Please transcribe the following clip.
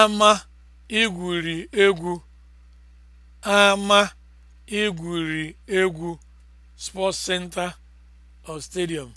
ama igwuri egwu ama igwuri egwu sports center or stadium